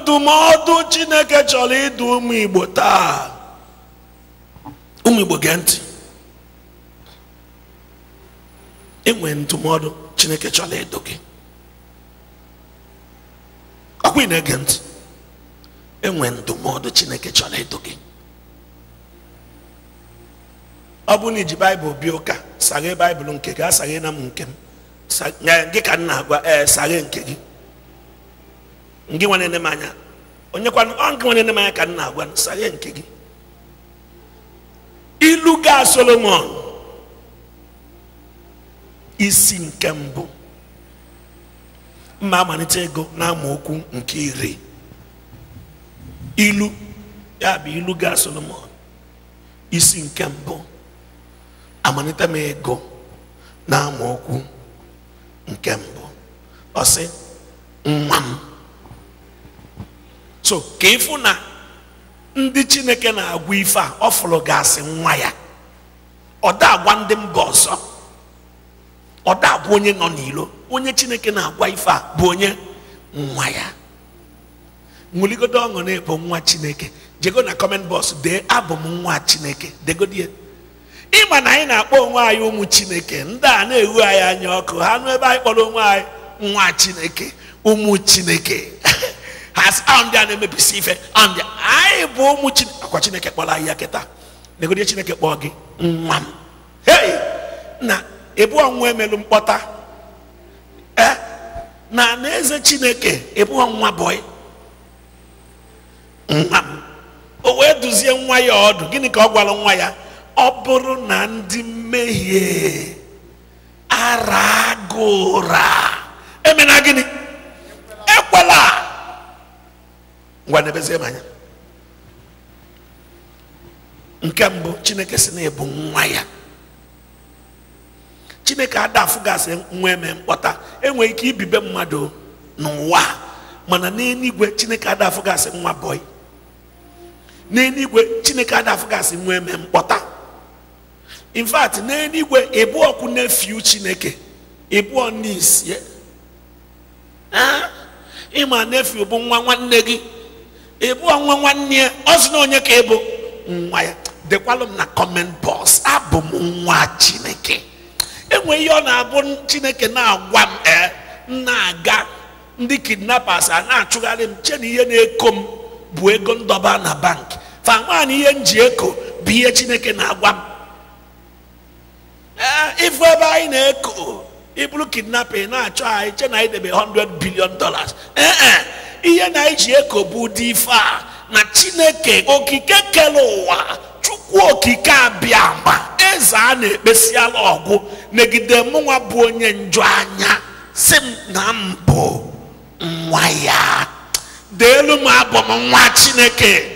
ndụmọdụ chineke chọrọ ịdụ ụmụ igbo taa ụmụ igbo gee ntị enwere ndụmọdụ chineke chọrọ ịdụ gị ọkwa ị na-ege ntị enwe ndụmọdụ chineke chọrọ ịdụ gị ọ bụ na iji baịbụl bịa ụka saghe baịbụl nke gị asaghe na m nke m gị ka m na-agwa ee saghe nke gị nke nwere na m anya onye kwanụ ọ nke nwere na m anya ka m na-agwa saghe nke gị ilu ga solomon isi nke mbụ mma amalite ego n'amaokwu nke iri ilu ya bụ ilu ga solomon isi nke mbụ amalite m ego n'amaokwu nke mbụ ọ sị nwa m so ka ịfụ na ndị chineke na-agwa ife a ọ fụrụ gasị nwa ya ọ da agwa ndị mba ọzọ ọ da agwa onye nọ n'ilo onye chineke na-agwa ife a bụ onye nwa ya nwụligodo ọṅụ na-ebo nwa chineke jego na kọment bọs dee abụ m nwa chineke degodie ịma na anyị na-akpọ onwe anyị ụmụ chineke ndị a na-ewu anyị anya ọkụ ha nụ ebe anyị kpọrọ onwe anyị nwa chineke ụmụ chineke has ahụ ndị a na-emebisi ife ahụ ndị anyị bụ ụmụ chineke akwa chineke kpọrọ ahịhịa kịta negodie chineke kpọọ gị nwa m hei na ebu ọnwa emelu mkpọta e na na eze chineke ebu ọnwa bọị nwa m o wee duzie nwa ya ọdụ gịnị ka ọ gwara nwa ya ọ bụrụ na ndị mmehie ara gụra emena gịnị ngwa nebezie anya nke mbụ chineke si na-ebu nwa ya chineke gasị nwa eme mkpọta enweghị ike ibibe mmadụ n'ụwa mana n'eluigwe chineke gasị nwa bọị n'eluigwe chineke adafụgasị nwa eme mkpọta in fact n'eluigwe ịbụ ọkụ na-efiu chineke ịbụọ n'isi ịma na-efiu bụ nwa nwanne gị ebu nwa nwanne ya ọ na onye ka ebo nwa ya dekwalụ m na kọment bọs abụ m nwa chineke enwe ihe ọ na-abụ chineke na-agwa m ee na-aga ndị kidnappers a na-achụgharị m che na ihe na-eko m bụ ego ndọba na bank fa nwaanyị ihe m ji eko bụ ihe chineke na-agwa m ee ebe anyị na-eko iburu kidnapping na-achọ anyị che na anyị debe 100 billion dollars ee e. ihe na iji bụ ụdị ife a na chineke okike kere ụwa chukwu okike abịa ma eze a na-ekpesiala ọgwụ megide mụnwa bụ onye njọ anya si m na mbụ nwa ya deelu m abụ m nwa chineke